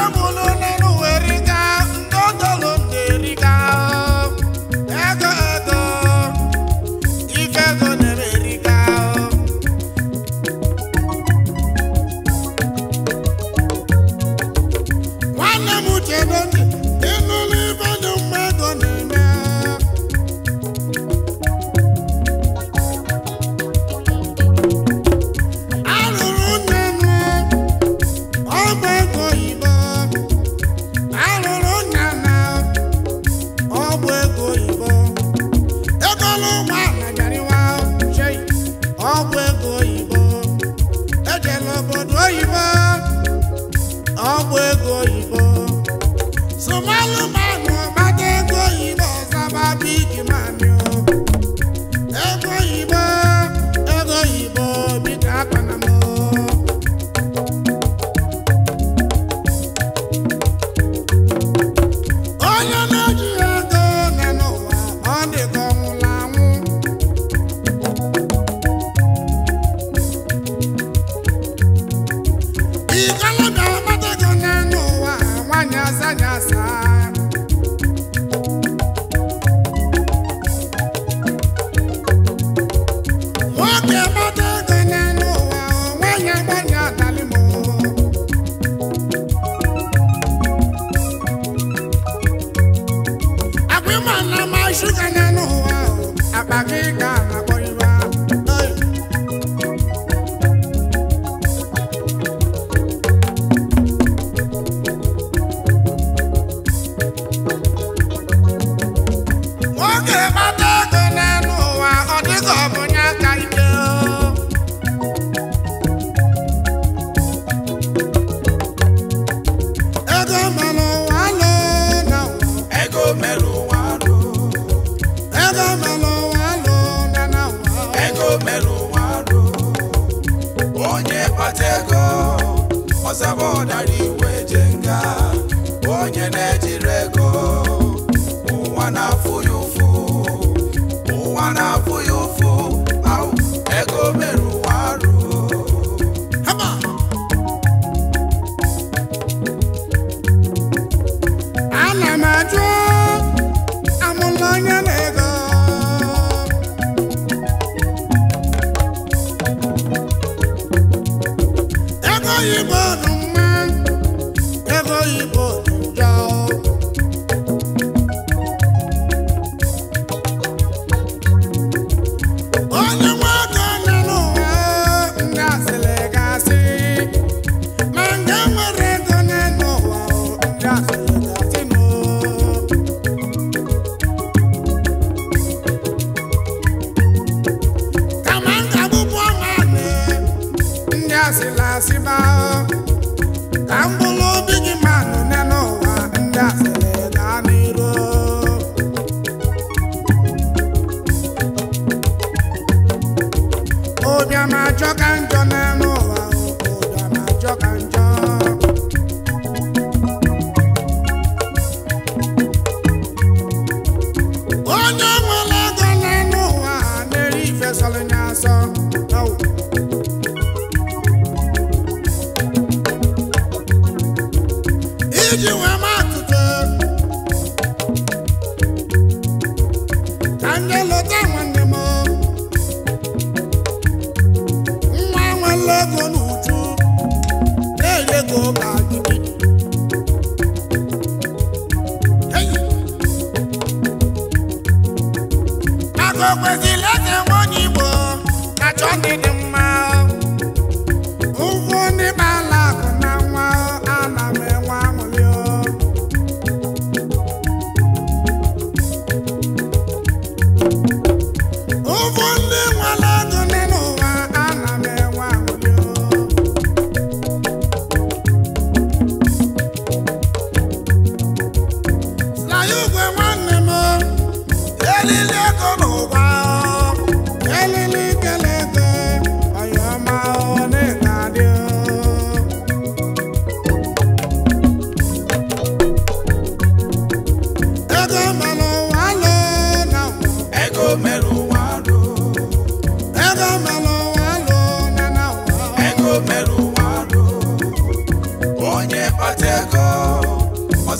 I'm going you va. ọcheko ọsabụ ọdara iwe je nga onye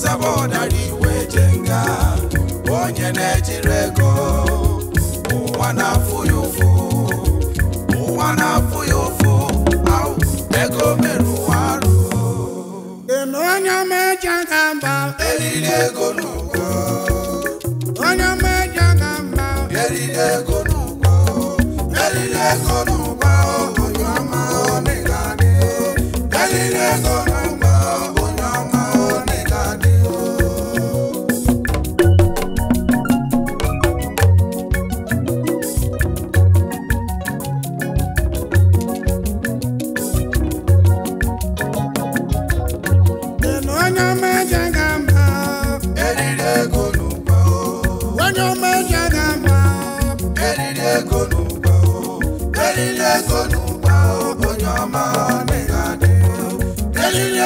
sebe ụdara iwe nga onye na-ejiri ego ụwa na-afụ ya ụfụ ụwa na-afụ ya ụfụ ego mere arụ onye meje ga mba eriri ego n'ụgwọ onye meje ga mba eriri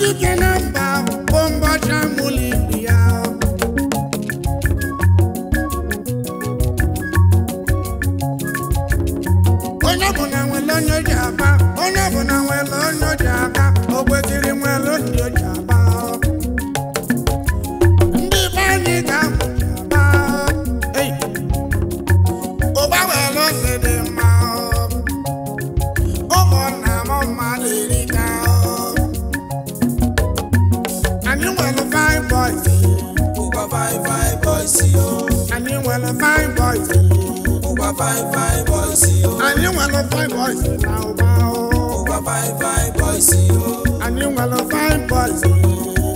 dike na mba bụ mbọchị amụla ya onye nwere onye ji aba onye na nwere onye ji fine fine boys o. àní wọn lọ fine boys báwo báwo. ó boys o. àní wọn lọ fine boys.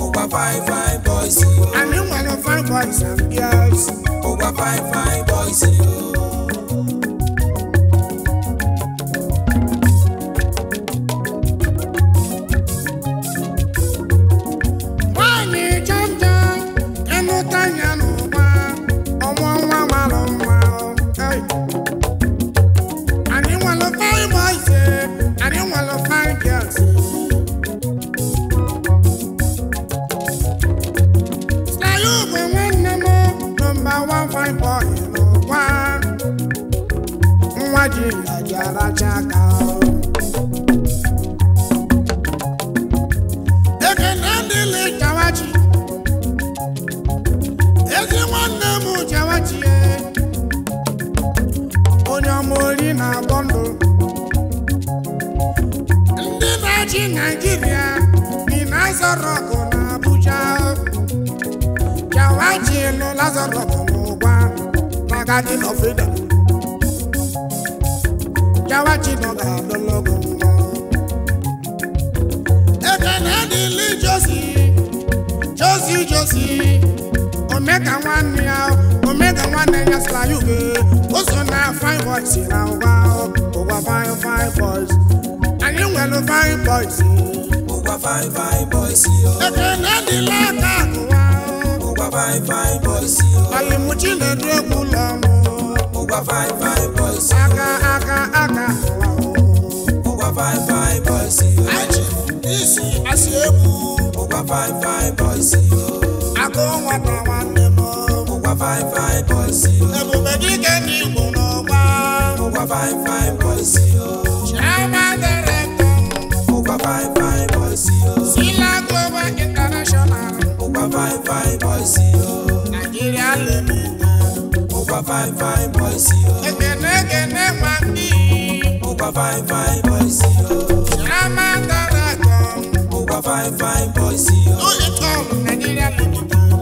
ó gba fine boys o. àní wọn lọ fine boys and girls. ó gba fine boys Nene Lazarus Mugwa Magadi no freedom Jawachi no ga lologo Ekene dili Josi Josi Josi Omega one ya Omega one ya sla yuge Oso na fine boys ira uwa Uwa fine fine boys Anyị nwere fine boys Uwa fine fine boys Ekene dili aka akụwa fine fine boys o. alimuchi na dúrẹ́kù lọ́mọ. mo gba fine fine boys o. aka aka aka wa fine fine boys o. isi asi egwu. mo gba fine fine boys o. akọ nwata nwanne m. mo gba fine fine boys o. ebube dike ndị Igbo n'ọgba. mo gba fine fine boys o. chiama director. fine fine boys o. sila global pa fine fine boys o. Nàìjíríà lè mú gan. Ó pa five fine boys o. Ẹgbẹ̀lẹ́gẹ̀lẹ́ máa ń bí. Ó pa fine five boys o. Ṣé máa ń dára gan? Ó pa fine fine boys o. Ó lè kọ́ Nàìjíríà lè mú gan.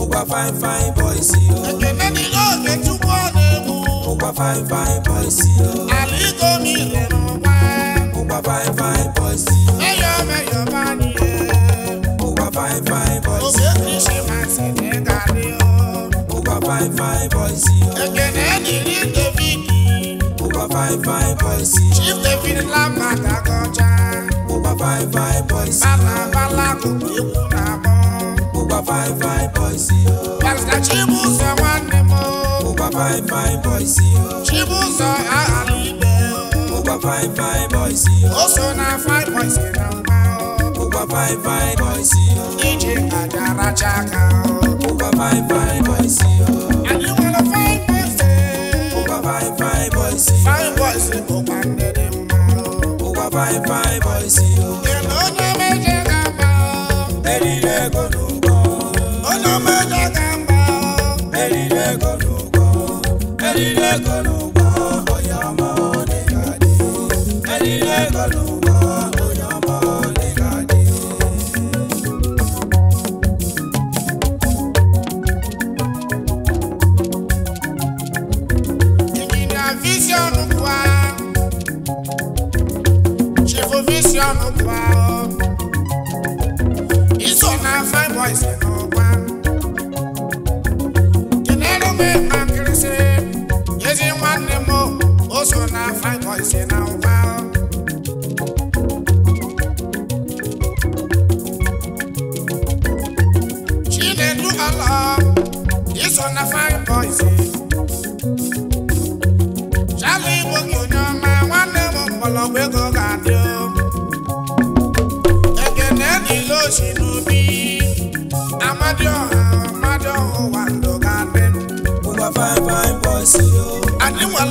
Ó pa fine fine boys o. Ẹgbẹ̀lẹ́ ni ó lè túbọ̀ lè mú. Ó pa fine fine boys o. Àlíkò mi lè mú wá. Ó pa fine fine boys o. ṣé five, í ṣe máa sì ní kárí boys o. ẹgbẹ̀rún ẹ̀dì rí boys o. chief david lápàtà kọjá. ó wá fine fine boys o. bàbá bàlá kò kí kúra mọ́. ó wá fine fine boys o. pásítà chibu sọ wọn ni mo. ó wá fine fine boys o. chibu sọ àhàlù ibẹ̀ o. ó wá fine fine boys o. DJ Adara Chaka o. Uba fine fine boys o. Àbí wọn lọ fine boys o. Uba fine fine boys o. Fine boys o pa ndẹ́dẹ̀ mọ́. Uba fine fine boys o. Èlò ọ̀nà méje kan pa o. Erile kodo kọ. Ọ̀nà méje kan pa o. Erile vision ọrụ iso na fine boys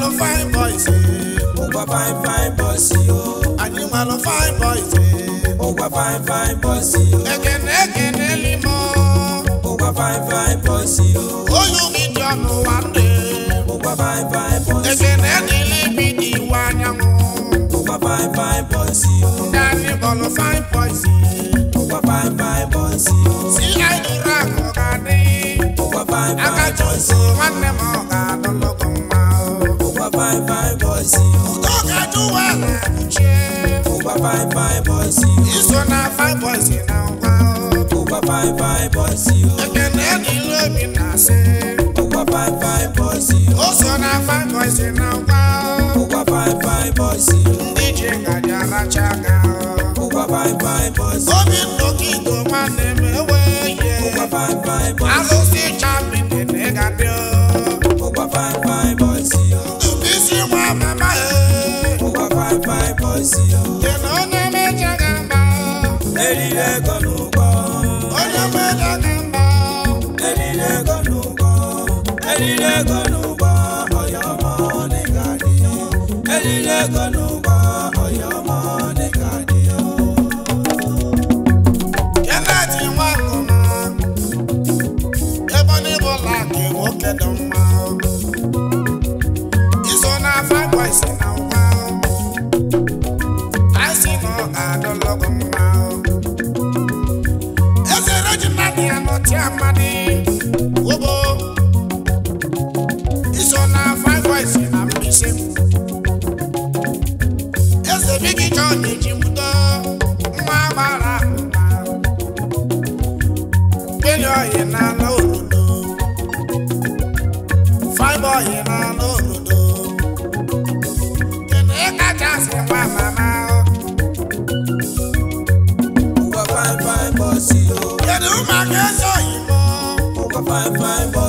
lọ fine boys. Eh. mo gba fine fine boys eh, o. àní mà lọ fine boys. Eh. mo gba fine fine boys o. ẹ̀gẹ̀dẹ̀ ẹ̀gẹ̀dẹ̀ limọ̀. mo gba fine fine boys o. oyún mi jọ mo wà ń dé. mo gba fine fine boys o. ẹ̀gẹ̀dẹ̀ nílé mi di wá nyàmú. mo gba fine fine boys o. dání bọ̀lọ̀ fine boys o. mo gba fine fine boys o. sí àìdúrà kọ̀ọ̀kan ní. mo gba fine fine boys o. akájọ sí wọn nẹ́mọ̀ ọ̀gá lọ́lọ́kùn fine fine boys. Udoka duwa na buche. Uba fine fine boys. Iso na fine boys na uba. Uba fine fine boys. Ekene ni lobi na se. Uba five fine boys. Oso na five boys na uba. Uba fine fine boys. Ndi jenga jara chaga. Uba fine fine boys. Obi ndoki go manemewe. Uba fine fine boys. Alo si the ne negadio. ezi ya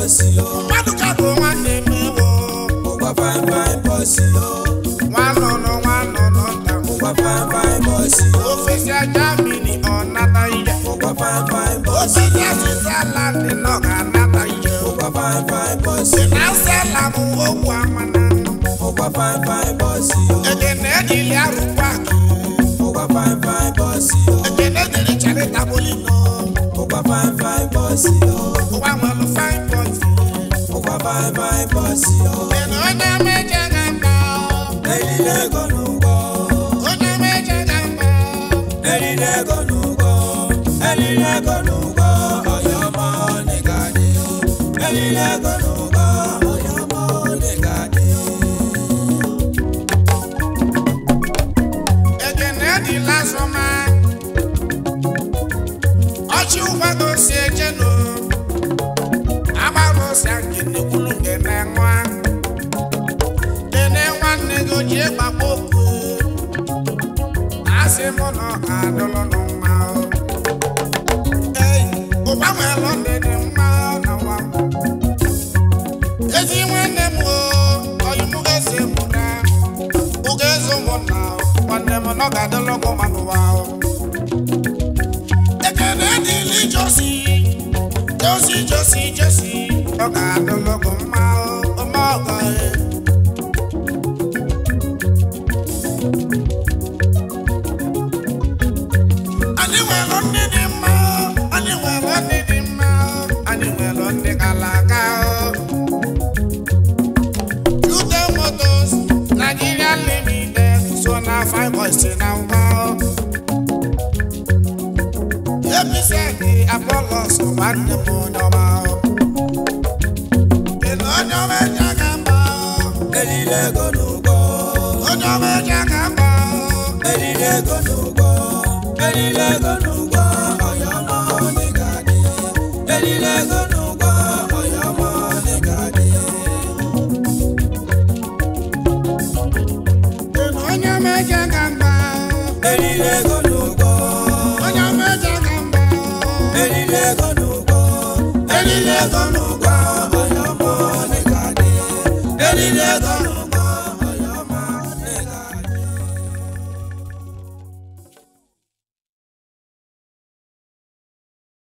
bọ́ọ̀sì o. pádùkàdù wọn ni mi wò. mo gba fine fine bọ́ọ̀sì o. wọn nọ̀nà wọn nọ̀nà ta. mo gba fine fine bọ́ọ̀sì o. òfìsì ajá mi ni ọ̀nà ta mo gba fine fine bọ́ọ̀sì o. òfìsì àṣìṣe aláǹdì náà kà ná ta mo gba fine fine bọ́ọ̀sì o. ìnáṣẹ́ làmú owó àwọn mo gba fine fine bọ́ọ̀sì o. èdè náà ilé arúgbó àgbà. mo gba fine fine bọ́ọ̀sì o. èdè ní taboli bye bye bọ́sì o. ẹ̀mọ́ ọ̀nà méje kan gbà ọ́. ẹ̀rí lẹ́gọ̀nù gbọ́. ọ̀nà méje kan gbà ọ́. ẹ̀rí lẹ́gọ̀nù gbọ́. ẹ̀rí lẹ́gọ̀nù gbọ́. ọ̀yọ́ mọ́ nìkan ni o. ẹ̀rí lẹ́gọ̀nù. ịmụnọ adụlụnụ mma ei ụgbanweelụ ndị dị mma n'ụwa ezi nwanne m oyimụgezi mụra ụga ezi ụmụnna nwanne m nọ ga-adịlụgụ ma n'ụwa ekene dịla ijosi josi josi josi ọ ga-adịlụgụ mma Lego, no go, any Lego, ¡Vamos!